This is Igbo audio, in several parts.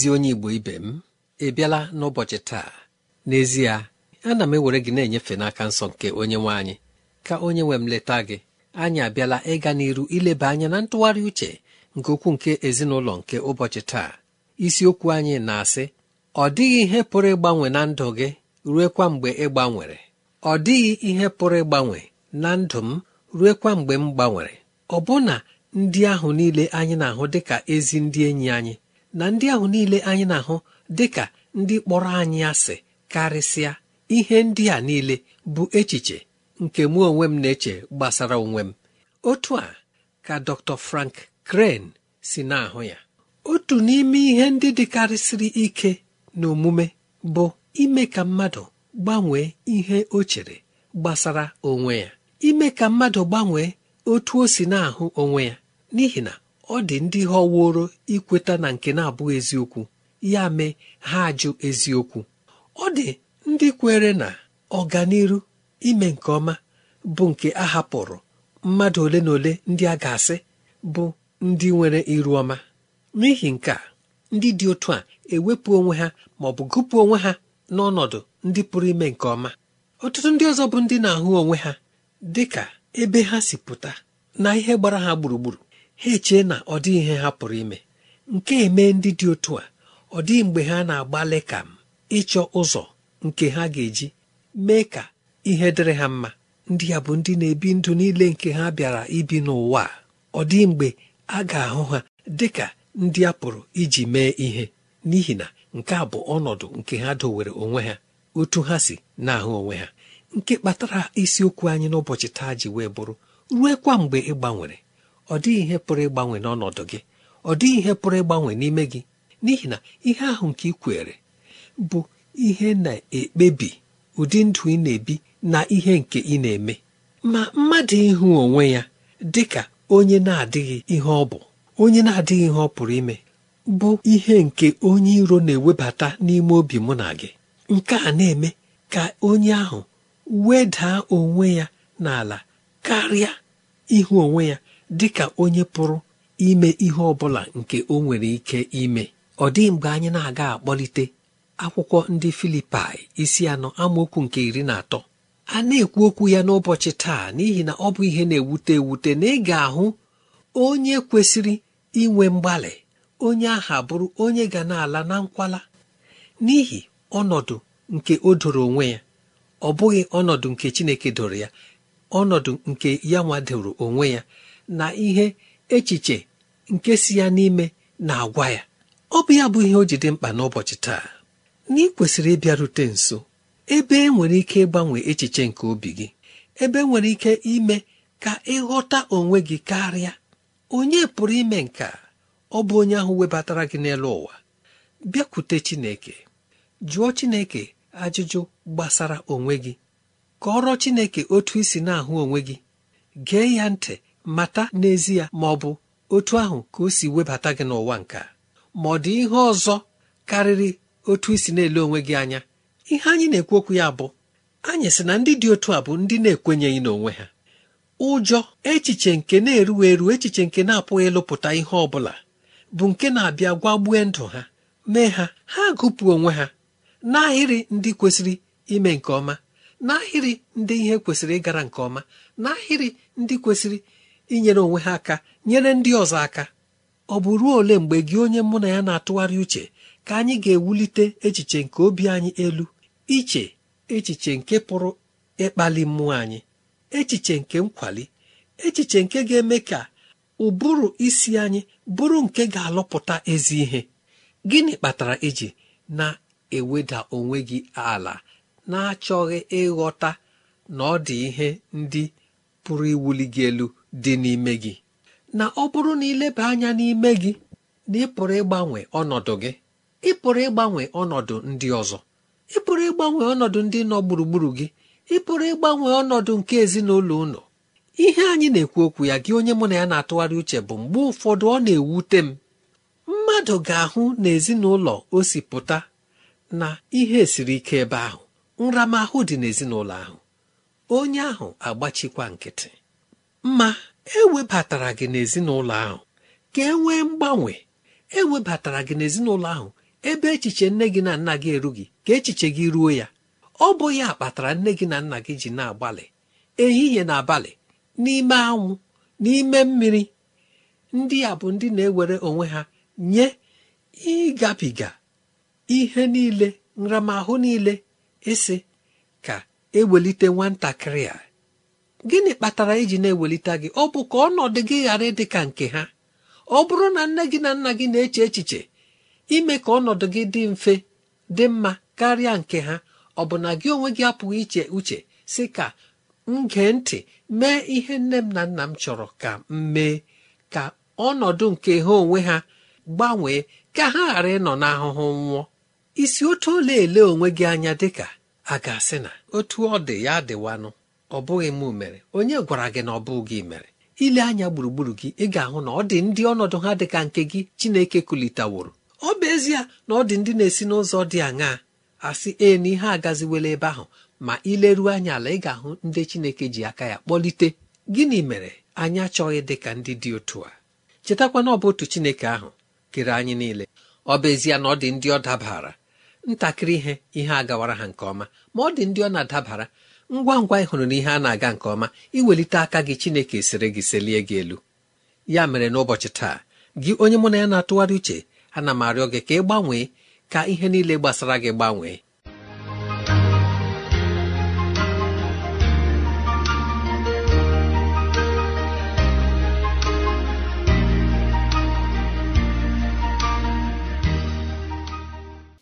ezi onye igbo ibe m ị bịala n'ụbọchị taa n'ezie ana m ewere gị na-enyefe n'aka nsọ nke onye nwe anyị ka onye nwe m leta gị anyị abịala ịga n'iru ileba anya na ntụgharị uche nke okwu nke ezinụlọ nke ụbọchị taa isiokwu anyị na-asị ọ dịghị ihe pụrụ ịgbanwe na ndụ gị ruekwa mgbe ị gbanwere ọ dịghị ihe pụrụ ịgbanwe na ndụ m ruekwa mgbe m gbanwere ọbụna ndị ahụ niile anyị na-ahụ dịka ezi ndị enyi anyị na ndị ahụ niile anyị na-ahụ dị ka ndị kpọrọ anyị asị karịsịa ihe ndị a niile bụ echiche nke mụ onwe m na-eche gbasara onwe m otu a ka Dr. Frank kren si na-ahụ ya otu n'ime ihe ndị dịkarịsịrị ike na omume bụ ime ka mmadụ gbanwee ihe o chere gbasara onwe ya ime ka mmadụ gbanwee otu o si na-ahụ onwe ya n'ihi na ọ dị ndị họworo ikweta na nke na-abụghị eziokwu ya mee ha ajụ eziokwu ọ dị ndị kwere na ọganiru ime nke ọma bụ nke a hapụrụ mmadụ ole na ole ndị a ga-asị bụ ndị nwere iru ọma n'ihi nke a ndị dị otu a ewepụ onwe ha ma ọ bụ gụpụ onwe ha n'ọnọdụ ndị pụrụ ime nke ọma ọtụtụ ndị ọzọ bụ ndị na-ahụ onwe ha dị ka ebe ha si pụta na ihe gbara ha gburugburu ha echee na ọ dịghị ihe ha pụrụ ime nke eme ndị dị otu a ọ dịghị mgbe ha na-agbalị ka ịchọ ụzọ nke ha ga-eji mee ka ihe dịrị ha mma ndị ya bụ ndị na-ebi ndụ niile nke ha bịara ibi n'ụwa ọ dịghị mgbe a ga-ahụ ha dị ka ndị a pụrụ iji mee ihe n'ihi na nke a bụ ọnọdụ nke ha dowere onwe ha otu ha si na-ahụ onwe ha nke kpatara isiokwu anyị n'ụbọchị taa ji wee bụrụ kwa mgbe ị gbanwere ọ dịghị ihe pụrụ ịgbanwe n'ọnọdụ gị ọ dịghị ihe pụrụ ịgbanwe n'ime gị n'ihi na ihe ahụ nke ị kwere bụ ihe na-ekpebi ụdị ndụ ị na-ebi na ihe nke ị na-eme ma mmadụ ịhụ onwe ya dị ka onye na-adịghị ihe ọ bụ onye na-adịghị ihe ọ pụrụ ime bụ ihe nke onye iro na-ewebata n'ime obi mụ na gị nke a na-eme ka onye ahụ wedaa onwe ya n'ala karịa ịhụ onwe ya dịka onye pụrụ ime ihe ọ bụla nke o nwere ike ime ọ dị mgbe anyị na-aga akpọlite akwụkwọ ndị filipai isi anọ amaokwu nke iri na atọ a na-ekwu okwu ya n'ụbọchị taa n'ihi na ọ bụ ihe na-ewute ewute na ị ga-ahụ onye kwesịrị inwe mgbalị onye aha bụrụ onye ga na-ala na nkwala n'ihi ọnọdụ nke o doro onwe ya ọ bụghị ọnọdụ nke Chineke doro ya ọnọdụ nke ya nwadoro onwe ya na ihe echiche nke si ya n'ime na-agwa ya ọ bụ ya bụ ihe o ji mkpa n'ụbọchị taa na ị kwesịrị ịbịarute nso ebe e nwere ike ịgbanwe echiche nke obi gị ebe e nwere ike ime ka ịghọta onwe gị karịa onye pụrụ ime nke ọ bụ onye ahụ webatara gị n'elu ụwa bịakwute Chineke jụọ Chineke ajụjụ gbasara onwe gị kọọrọ Chineke otu isi na-ahụ onwe gị gee ya ntị mata n'ezie ma ọ bụ otu ahụ ka o si webata gị n'ụwa nka ma ọ dị ihe ọzọ karịrị otu isi na-ele onwe gị anya ihe anyị na-ekwu okwu ya bụ anyị sị na ndị dị otu a bụ ndị na-ekwenyeghị n'onwe ha ụjọ echiche nke na-eruwa eru echiche nke na-apụghị ịlụpụta ihe ọ bụla bụ nke na-abịa gwagbue ndụ ha mee ha ha gụpụ onwe ha n'ahịrị ndị kwesịrị ime nke ọma n'ahịrị ndị ihe kwesịrị ịgara nke ọma n'ahịrị ndị kwesịrị inyere onwe ha aka nyere ndị ọzọ aka ọ bụ ruo ole mgbe gị onye mụ na ya na-atụgharị uche ka anyị ga-ewulite echiche nke obi anyị elu iche echiche nke pụrụ ịkpali mmụọ anyị echiche nke nkwali echiche nke ga-eme ka ụbụrụ isi anyị bụrụ nke ga-alụpụta ezi ihe gịnị kpatara iji na-eweda onwe gị ala na-achọghị ịghọta na ọ dị ihe ndị pụrụ iwuli gị elu dị n'ime gị na ọ bụrụ na ileba anya n'ime gị na ị pụrụ ịgbanwe ọnọdụ gị ị pụrụ ịgbanwe ọnọdụ ndị ọzọ ị pụrụ ịgbanwe ọnọdụ ndị nọ gburugburu gị ị pụrụ ịgbanwe ọnọdụ nke ezinụlọ ụlọ ihe anyị na-ekwu okwu ya gị onye mụ na ya na-atụgharị uche bụ mgbe ụfọdụ ọ na-ewute m mmadụ ga-ahụ na ezinụlọ o si pụta na ihe siri ike ebe ahụ nramahụ dị n'ezinụlọ ahụ onye ahụ agbachikwa nkịtị ma ewebatara gị n'ezinụlọ ahụ ka e nwee mgbanwe e webatara gị n'ezinụlọ ahụ ebe echiche nne gị na nna gị erughị ka echiche gị ruo ya ọ bụ ya kpatara nne gị na nna gị ji na-agbalị ehihie na abalị n'ime anwụ n'ime mmiri ndị a bụ ndị na-ewere onwe ha nye ịgabiga ihe niile nramahụ niile isi ka ewelite nwatakịrị a gịnị kpatara iji na-ewelite gị ọ bụ ka ọnọdụ gị ghara ịdị ka nke ha ọ bụrụ na nne gị na nna gị na-eche echiche ime ka ọnọdụ gị dị mfe dị mma karịa nke ha ọ bụ na gị onwe gị apụghị iche uche si ka m gee ntị mee ihe nne m na nna m chọrọ ka m mee ka ọnọdụ nke ha onwe ha gbanwee ka ha ghara ịnọ n'ahụhụ nwụọ isi otu ole ele onwe gị anya dịka a ga-asị na otu ọ dị ya dịwanụ ọ bụghị m mere onye gwara gị na ọ bụ gị mere ile anya gburugburu gị ị ga-ahụ na ọ dị ndị ọnọdụ ha dị ka nke gị Chineke kulitaworo ọ bụ ezie na ọ dị ndị na-esi n'ụzọ dị aṅaa asị ee na ihe agaziwela ebe ahụ ma ileruo anya ala ị ga-ahụ ndị Chineke ji aka ya kpọlite gịnị mere anyị achọghị dị ka ndị dị otu a chetakwa na ọ bụ otu Chineke ahụ kere anyị niile ọ bụ ezie na ọ dị ndị ọ dabara ntakịrị ihe ihe agawara ha nke ọma ma ọ dị ndị ọ na-adabara ngwa ngwa ị na ihe a na-aga nke ọma iwelite aka gị chineke siri gị selie gị elu ya mere n'ụbọchị taa gị onye mụ na ya na-atụgharị uche ana m arịọ gị ka ị gbanwee ka ihe niile gbasara gị gbanwee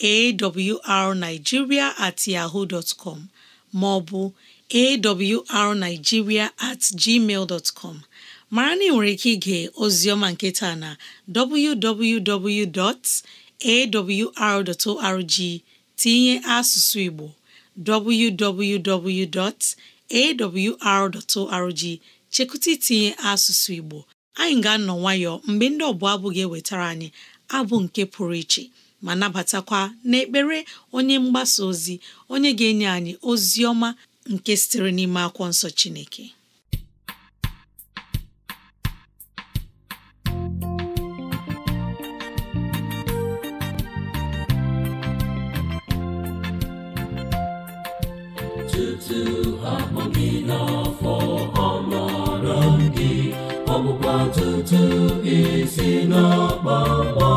awrnigeria at yahoo dot com ma ọ bụ awrnigeria at gmail dot mara na ị nwere ike ige ozioma nketa na www.awr.org tinye asụsụ Igbo www.awr.org chekụta itinye asụsụ Igbo anyị ga-anọ nwayọọ mgbe ndị ọbụla abụ ga-ewetara anyị abụ nke pụrụ iche ma nabatakwa n'ekpere onye mgbasa ozi onye ga-enye anyị ozi ọma nke sitere n'ime akwụkwọ nsọ Chineke tutu akpọ gị n'afọ amara gị ọgbụgba tutu isi n'ọkpọ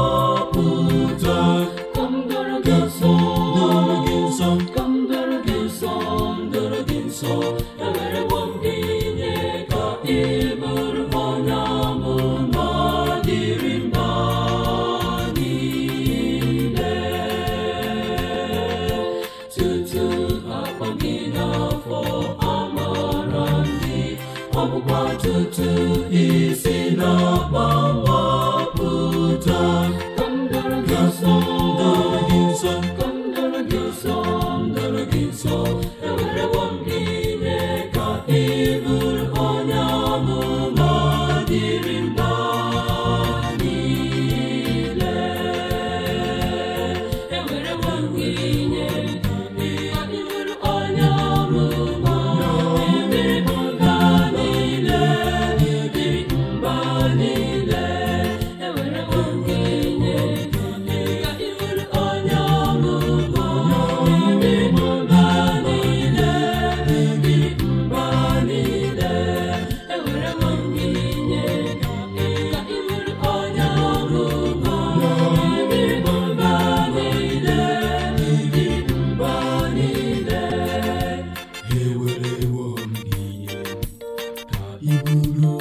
iburu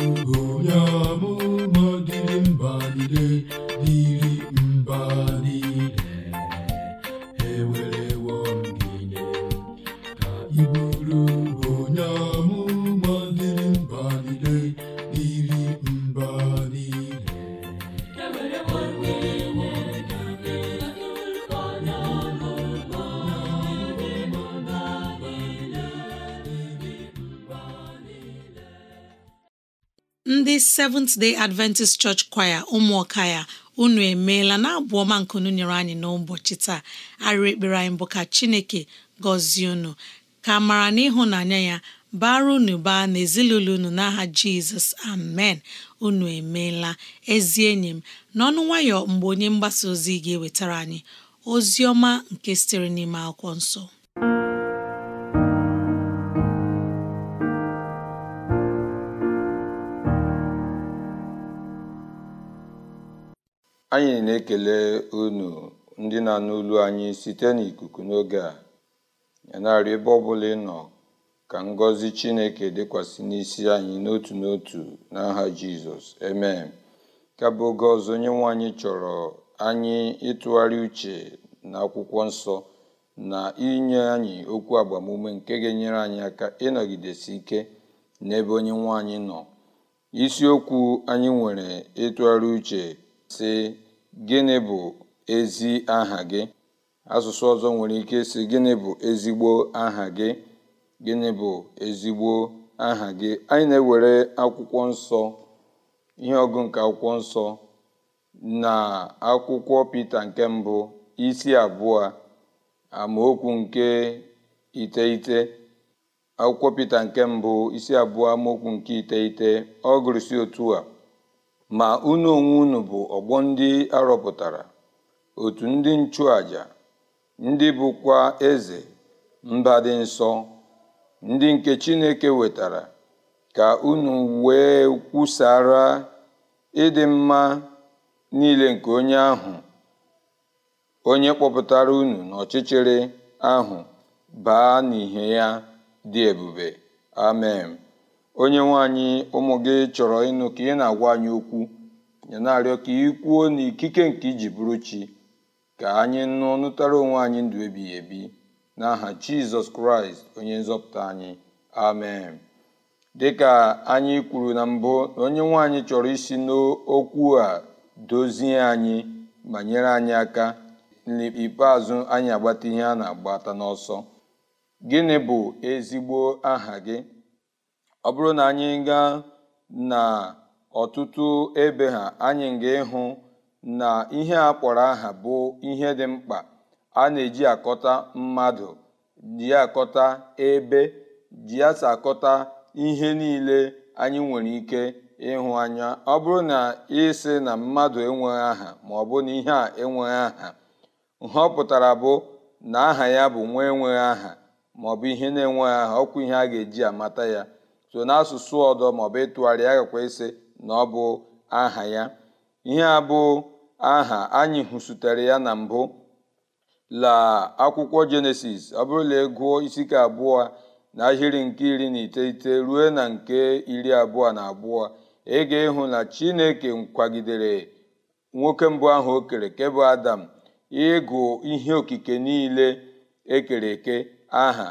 Seventh Day Adventist Church Choir ụmụọka ya unu emeela na abụ ọma nkunu nyere anyị n'ụbọchị taa arịrị ekpere anyị bụ ka Chineke gọzie unu ka mara na ịhụnanya ya bara unu baa ezinụlọ unu n'aha Jizọs amen unu emeela ezi enyi m n'ọnụ nwayọ mgbe onye mgbasa ozi ga-ewetara anyị ozi ọma nke sitere n'ime akwụkwọ nsọ Anyị na-ekele unu ndị na-anụ olu anyị site n'ikuku n'oge a. Ya ebe ọbụla ị nọ ka ngọzi Chineke dịkwasị n'isi anyị n'otu n'otu n'aha Jizọs. eme Ka oge ọzọ onye nwe anyị chọrọ anyị ịtụgharị uche na akwụkwọ nsọ na inye anyị okwu agbamume nke ga-enyere anyị aka ịnọgidesi ike n'ebe onye nwe anyị nọ. Isiokwu anyị nwere ịtụgharị uche sị gịnị bụ ezi aha gị asụsụ ọzọ nwere ike sị gịnị bụ ezigbo aha gị gịnị bụ ezigbo aha gị anyị na-ewere akwụkwọ nsọ ihe ọgụ nke akwụkwọ nsọ na akwụkwọ Pita nke mbụ isi abụọ amaokwu nke iteghete akwụkwọ pete nke mbụ isi abụọ amaokwu nke iteghete ọ otu a ma unu onwe unu bụ ọgbọ ndị arọpụtara otu ndị nchụàjà ndị bụkwa eze mba dị nsọ ndị nke Chineke wetara ka unu wee kwusara ịdị mma niile nke onye ahụ onye kpọpụtara unu n'ọchịchịrị ahụ baa n'ihe ya dị ebube amen onye nwaanyị ụmụ gị chọrọ ịnụ ka ị na-agwa anyị okwu ya na ka ị kwuo n'ikike nke iji bụrụ chi ka anyị nụ nụtara onwe anyị ndụ ebighị ebi n'aha jizọs kraịst onye nzọpụta anyị amen dịka anyị kwuru na mbụ na onye nwaanyị chọrọ isi n'okwu a dozie anyị ma nyere anyị aka n'ikpeazụ anyị agbata ihe a na-agbata n'ọsọ gịnị bụ ezigbo aha gị ọ bụrụ na anyị gaa na ọtụtụ ebe ha anyị ga-ịhụ na ihe a kpọrọ aha bụ ihe dị mkpa a na-eji akọta mmadụ ji akọta ebe ji asa akọta ihe niile anyị nwere ike ịhụ anya ọ bụrụ na ịsị na mmadụ enweghị aha ma ọ bụ na ihe a enweghị aha nhọpụtara bụ na aha ya bụ nwa enweghị aha maọbụ ihe na-enweghị aha ọkwa ihe a ga-eji amata ya so n'asụsụ ọdọ maọbụ ịtụgharị ya gakwa ise na ọ bụ aha ya ihe a bụ aha anyị hụsutere ya na mbụ la akwụkwọ jenesis ọ bụrụ na ịgụọ e isi ka abụọ na ahịrị nke iri na iteghete ruo na nke iri abụọ na abụọ ị ga-ịhụ na chineke kwagidere nwoke mbụ ahụ o kere ke adam ịgụ ihe okike niile ekere eke aha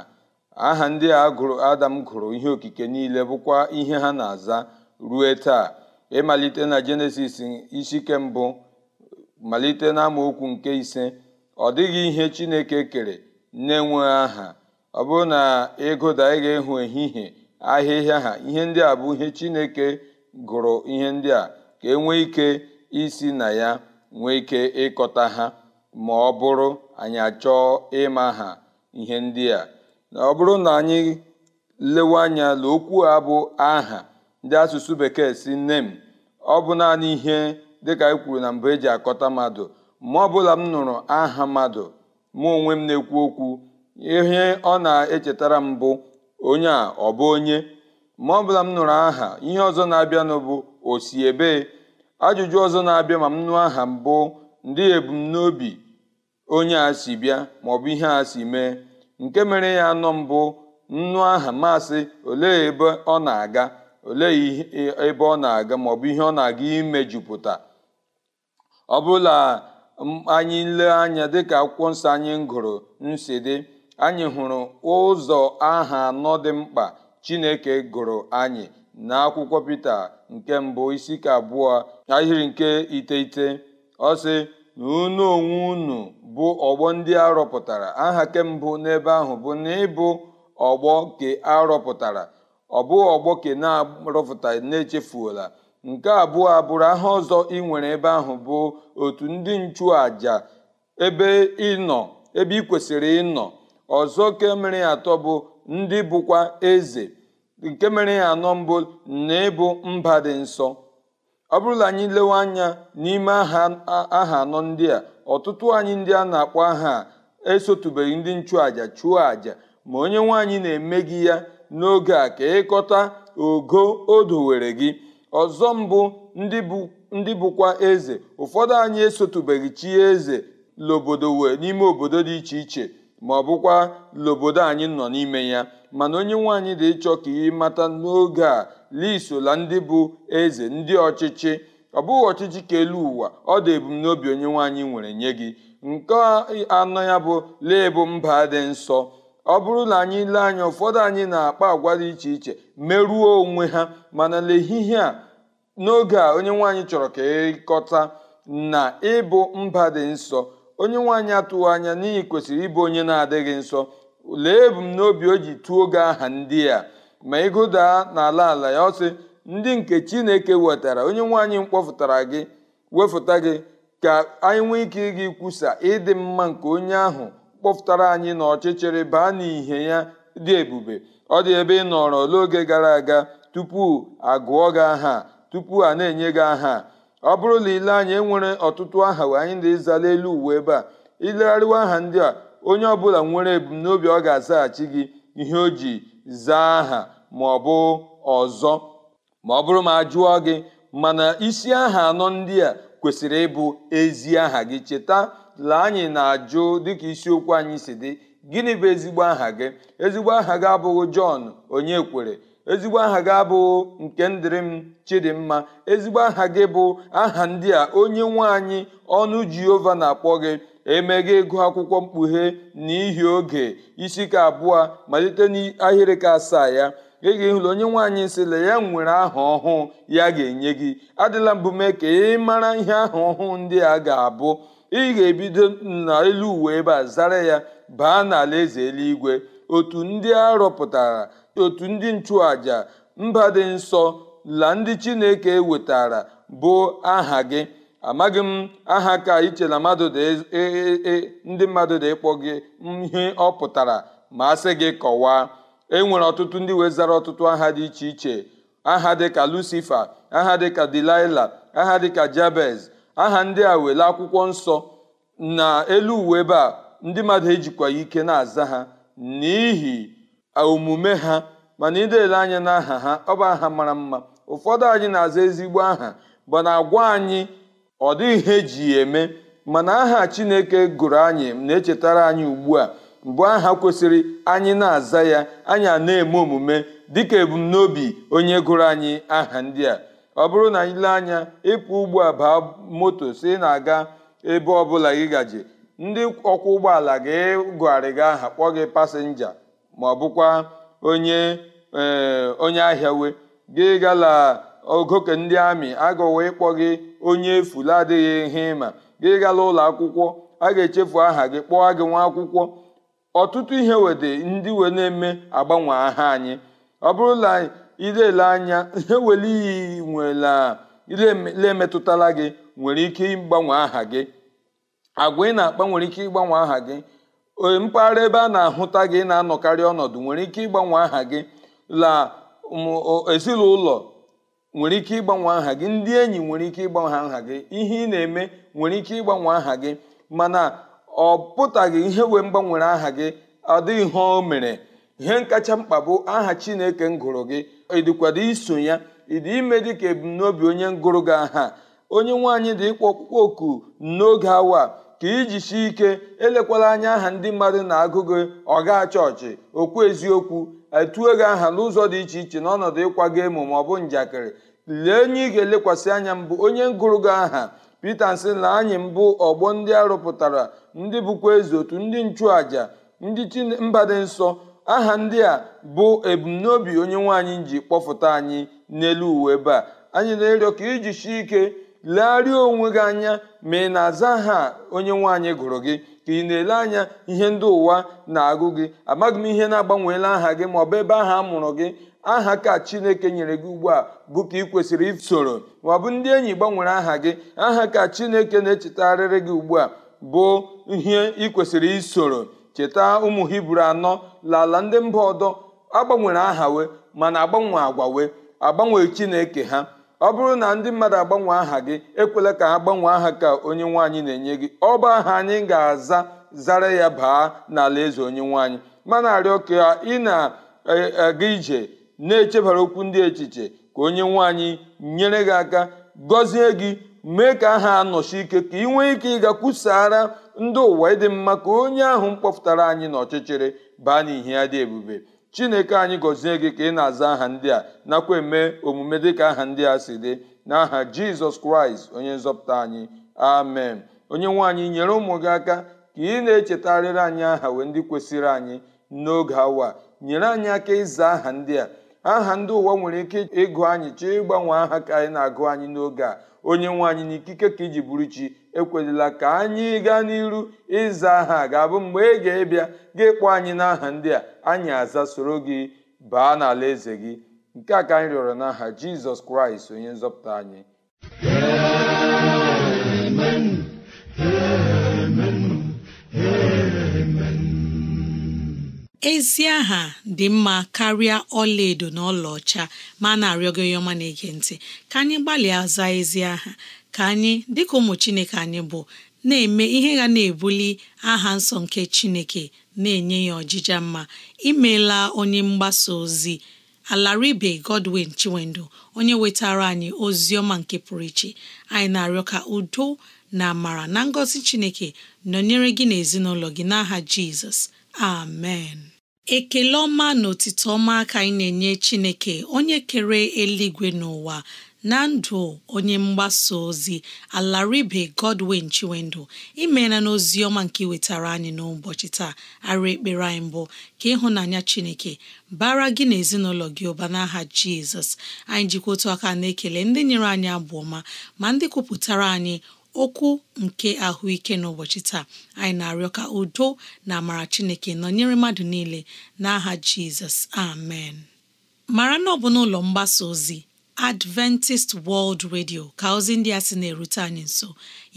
aha ndị a gụrụ adam gụrụ ihe okike niile bụkwa ihe ha na-aza rue taa ịmalite na jenesis isi ke mbụ malite na nke ise ọ dịghị ihe chineke kere na-enweghị aha ọ bụrụ na ịgụda ị ga-ehụ ehihie ahịhịa ha ihe ndị a bụ ihe chineke gụrụ ihe ndị a ka e nwee ike isi na ya nwee ike ịkọta ha ma ọ bụrụ anyị achọọ ịma ha ihe ndị a na ọ bụrụ na anyị lewe anya na okwu a bụ aha ndị asụsụ bekee si m ọ bụ naanị ihe dịka e kwuru na mbụ eji akọta mmadụ ma ọ bụla m nụrụ aha mmadụ mụ onwe m na-ekwu okwu ihe ọ na-echetara m bụ onye a ọ bụ onye ma ọ bụla m nụrụ aha ihe ọzọ na-abịanụ bụ osi ebee ajụjụ ọzọ na-abịa ma m nụọ aha mbụ ndị ebumnobi onye a si bịa maọbụ ihe a si mee nke mere ya nọ mbụ nnu aha masị olee ebe ọ na-aga olee e, ebe ọ na-aga maọbụ ihe ọ na-aga imejupụta ọ bụla anyị lee anya dịka akwụkwọ nsọ anyị gụrụ nsi dị anyị hụrụ ụzọ aha anọ dị mkpa chineke gụrụ anyị na akwụkwọ pita nke mbụ isi ka abụọ ahịrị nke iteghete ọ na unu onwe unu bụ ọgbọ ndị a rọpụtara aha mbụ n'ebe ahụ bụ na ịbụ ọgbọ ke a rọpụtara ọ bụ ọgbọ ke na-arọpụta na-echefuola nke abụọ abụrụ aha ọzọ ị nwere ebe ahụ bụ otu ndị nchụaja ebe ịnọ ebe ị kwesịrị ịnọ ọzọ kemere atọ bụ ndị bụkwa eze nke mere ya anọ mbụ na ịbụ mba dị nsọ ọ bụrụ na anyị lewe anya n'ime aha anọ ndị a ọtụtụ anyị ndị a na-akpọ aha a esotubeghị ndị nchụaja chụọ aja ma onye nwaanyị na-eme gị ya n'oge a ka ịkọta ogo o dowere gị ọzọ mbụ ndị bụkwa eze ụfọdụ anyị esotubeghị chi eze lobodo wee n'ime obodo dị iche iche ma ọ bụkwa lobodo anyị nọ n'ime ya mana onye nwaanyị dị ịchọ ka ị mata n'oge a liso ndị bụ eze ndị ọchịchị ọ bụghị ọchịchị ka elu ụwa ọ dị ebumnobi onye nwaanyị nwere nye gị nke anọ ya bụ lee bụ mba dị nsọ ọ bụrụ na anyị lee anya ụfọdụ anyị na-akpa agwa dị iche iche merụọ onwe ha mana n'ehihie a n'oge a onye nwaanyị chọrọ ka ịkọta e na ịbụ mba dị nsọ onye nwaanyị atụghị anya n'ihi kwesịrị ịbụ onye na-adịghị nsọ lee ebumnobi o ji tụọ oge aha ndị a ma ịgụdaa n'ala ala ya ọ sị ndị nke chineke wetara onye nwaanyị mkpọfụtara gị wefụta gị ka anyị nwee ike gị kwusa ịdị mma nke onye ahụ kpọfụtara anyị na ọchịchịrị baa n'ihe ya dị ebube ọ dị ebe ị nọrọ n'oge gara aga tupu agụọ gị aha tupu a na-enye gị aha ọ bụrụ na ile anya enwere ọtụtụ aha wee anyị na-ezala elu uwe ebe a ilegharịwa aha ndị a onye ọbụla nwere ebumnobi ọ ga-azaghachi gị ihe o ji zaa aha ma ọ bụ ọzọ ma ọ bụrụ ma a jụọ gị mana isi aha anọ ndị a kwesịrị ịbụ ezi aha gị cheta lee anyị na-ajụ dịka isiokwu anyị si dị gịnị bụ ezigbo aha gị ezigbo aha gị abụghị Jọn onye kwere ezigbo aha gị abụghị nke ndịrị m Chidimma ezigbo aha gị bụ aha ndị a onye nwe anyị ọnụ Jehova na-akpọ gị emeghị ịgụ akwụkwọ mkpughe n'ihi oge isi ka abụọ malite n'ahịrị ka asaa ya ị ga-ehụla onye nwaanyị sịla ya nwere aha ọhụụ ya ga-enye gị adịla mbụ mee ka ị mara ihe aha ọhụụ ndị a ga-abụ ị ga-ebido n'elu uwe ebe a zara ya baa n'ala eze eluigwe otu ndị a rọpụtara otu ndị nchụaja mba dị nsọ la ndị chineke wetara bụ aha gị amaghị m aha ka iche na mmadụ e, e, e, ndị mmadụ na-ekpọ gị ihe ọ pụtara ma a sị gị kọwaa e nwere ọtụtụ ndị wee ọtụtụ aha dị iche iche aha dịka lucifer aha dịka delilah aha dịka jabez aha ndị a wele akwụkwọ nsọ na elu uwe ebe a ndị mmadụ ejikwa ike na-aza ha n'ihi omume ha mana idele anya n'aha ha ọ bụ aha mara mma ụfọdụ anyị na-aza ezigbo aha bụ na agwa anyị ọ dịghị ihe eji ya eme mana aha chineke gụrụ anyị na-echetara anyị ugbu a mbụ aha kwesịrị anyị na-aza ya anyị na-eme omume dịka ebumnobi onye gụrụ anyị aha ndị a ọ bụrụ na anyị lee anya ịpụ ugbu abaa baa moto si na-aga ebe ọbụla gị gaje ndị ọkwọ ụgbọala gị gụgharị gị aha kpọọ gị pasenja ma ọ bụkwa onye eh, onye ahịa we gị gala ogoke ndị amị agọwa ịkpọ gị onye efu la adịghị ihe ịma gị gala ụlọ akwụkwọ a ga-echefu aha gị kpọọ gị nwa akwụkwọ ọtụtụ ihe wede ndị wee na-eme agbanwe aha anyị ọ bụrụ na idele anya ihe wele iyi nwela lemetụtala gị nwere ike ịgbanwe aha gị agwa ị na-akpa nwere ike ịgbanwe aha gị mpaghara ebe a na-ahụta gị na-anọkarị ọnọdụ nwere ike ịgbanwe aha gị la ezinụlọ nwere ike ịgbanwe aha gị ndị enyi nwere ike ịgbanwe aha gị ihe ị na-eme nwere ike ịgbanwe aha gị mana ọ pụtaghị ihe wee mgbanwere aha gị ọ dịghị ihe o mere ihe nkacha mkpa bụ aha chineke m gụrụ gị ịdịkwado iso ya ịdị ime dị ka ebumnobi onye ngụrụ gị aha onye nwaanyị dị ịkpọ ọkpụkpọ oku n'oge awa ka iji si ike elekwala anya aha ndị mmadụ na-agụ gị ọ gaa chọọchị okwu eziokwu etuo gị aha n'ụzọ dị iche iche n'ọnọdụ ịkwaga emo ma njakịrị lee onye ị ga-elekwasị anya mbụ onye ngụrụ gị aha pete sị na anyị mbụ ọgbọ ndị arụpụtara ndị bụkwa ezi otu ndị nchụaja ndị mba dị nsọ aha ndị a bụ ebumnobi onye nwaanyị ji kpọfụta anyị n'elu uwe ebe a anyị na-arịọ ka iji shi ike legharịa onwe gị anya ma ị na-aza aha onye nwaanyị gụrụ gị ka ị na-ele anya ihe ndị ụwa na-agụ gị amaghị m ihe na-agbanweela aha gị maọbụ ebe aha a mụrụ gị aha ka chineke nyere gị ugbu a bụ ka ị kwesịrị isoro maọbụ ndị enyi gbanwere aha gị aha ka chineke na echetarịrị gị ugbu a bụ ihe ị kwesịrị isoro cheta ụmụ hibru anọ lala ndị mba ọdọ agbanwere aha we mana agbanwe agwa wee agbanwe chineke ha ọ bụrụ na ndị mmadụ agbanwe aha gị ekwela ka ha gbanwee aha ka onye nwaanyị na-enye gị ọ bụ aha anyị ga-aza zara ya baa n'ala eze onye nwaanyị mana arịọ ka ị na-aga e, e, ije na-echebara okwu ndị echiche ka onye nwaanyị nyere gị aka gọzie gị mee ka aha anọchi ike ka ị nwee ike ịga kwusara ndị ụwa ịdị mma ka onye ahụ mkpọpụtara anyị n'ọchịchịrị baa n'ihe ya dị ebube chineke anyị gọzie gị ka ị na-aza aha ndị a nakwa eme omume dịka aha ndị a si dị n'aha jizọs kraịst onye nzọpụta anyị amen onye nwaanyị nyere ụmụ gị aka ka ị na-echetarịrị anyị aha wee ndị kwesịrị anyị n'oge awa nyere anyị aka ịza aha ndị a aha ndị ụwa nwere ike ịgụ anyị chọọ ịgbanwe aha ka anyị na-agụ anyị n'oge a onye nwe anyị n'ikike ka iji bụrụ chi ekwelila ka anyị gaa n'iru ịza aha ga-abụ mgbe ị ga-ebịa gị kpọ anyị n'aha ndị a anyị aza soro gị baa n'ala eze gị nke a ka anyị rịọrọ n'aha jizọs kraịst onye nzọpụta anyị ezi aha dị mma karịa ọlaedo na ọlaọcha ma na-arịọ gị onye ọma na ntị ka anyị gbalịa zaa ezi aha ka anyị dịka ụmụ Chineke anyị bụ na-eme ihe ga na-ebuli aha nsọ nke Chineke na-enye ya ọjịja mma imeela onye mgbasa ozi Alaribe Godwin Chiwendo onye wetara anyị ozi ọma nke pụrụ iche anyị na-arịọ ka udo na amara na ngọzi Chineke nọnyere gị na ezinụlọ gị n'aha Jizọs amen ekele ọma na otito ọma ka anyị na-enye Chineke onye kere eluigwe n'ụwa na ndụ onye mgbasa ozi alaribe Godwin Chiwendụ imeela n'ozi ọma nke wetara anyị n'ụbọchị taa arụ ekpere anyị mbụ ka ịhụnanya Chineke bara gị na ezinụlọ gị ụba n'aha Jizọs anyị jikwa otu aka na-ekele ndị nyere anyị abụ ọma ma ndị kwupụtara anyị okwu nke ahụike n'ụbọchị taa anyị na-arịọ ka udo na amara Chineke nọnyere mmadụ niile n'aha Jizọs amen mara na ọ bụ n'ụlọ mgbasa ozi Adventist World Radio ka ozi ndị a sị na-erute anyị nso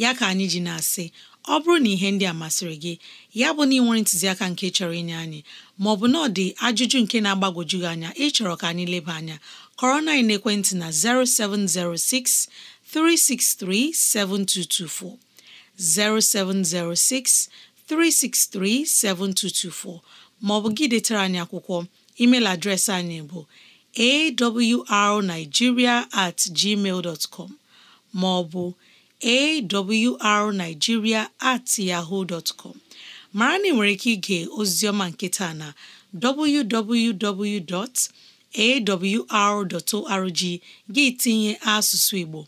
ya ka anyị ji na-asị ọ bụrụ na ihe ndị a masịrị gị ya bụ na ị nwere ntụziaka nke chọrọ inye anyị maọbụ na ọ dị ajụjụ nke na-agbagwoju gị anya ịchọrọ ka anyị leba anya kọrọ na ekwentị na 0706 363 7224 0706 363 7224 maọbụ gị detara anyị akwụkwọ emeil adreesị anyị bụ arnigiria at gmail com ma ọ bụ at yahoo dot com mara na ị nwere ike ige ozioma nketa na www.awr.org gị tinye asụsụ Igbo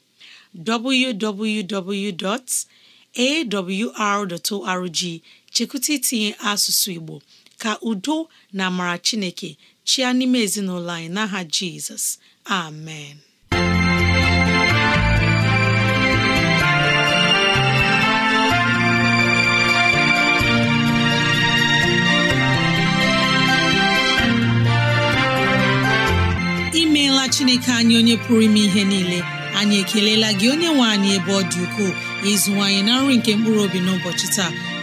www.awr.org chekwụta itinye asụsụ Igbo ka udo na amara Chineke chịa n'ime ezinụlọ anyị n'aha jizọs amen imeela chineke anyị onye pụrụ ime ihe niile anyị ekelela gị onye nwe anyị ebe ọ dị ukwuu ịzụwanyị na nri nke mkpụrụ obi n'ụbọchị taa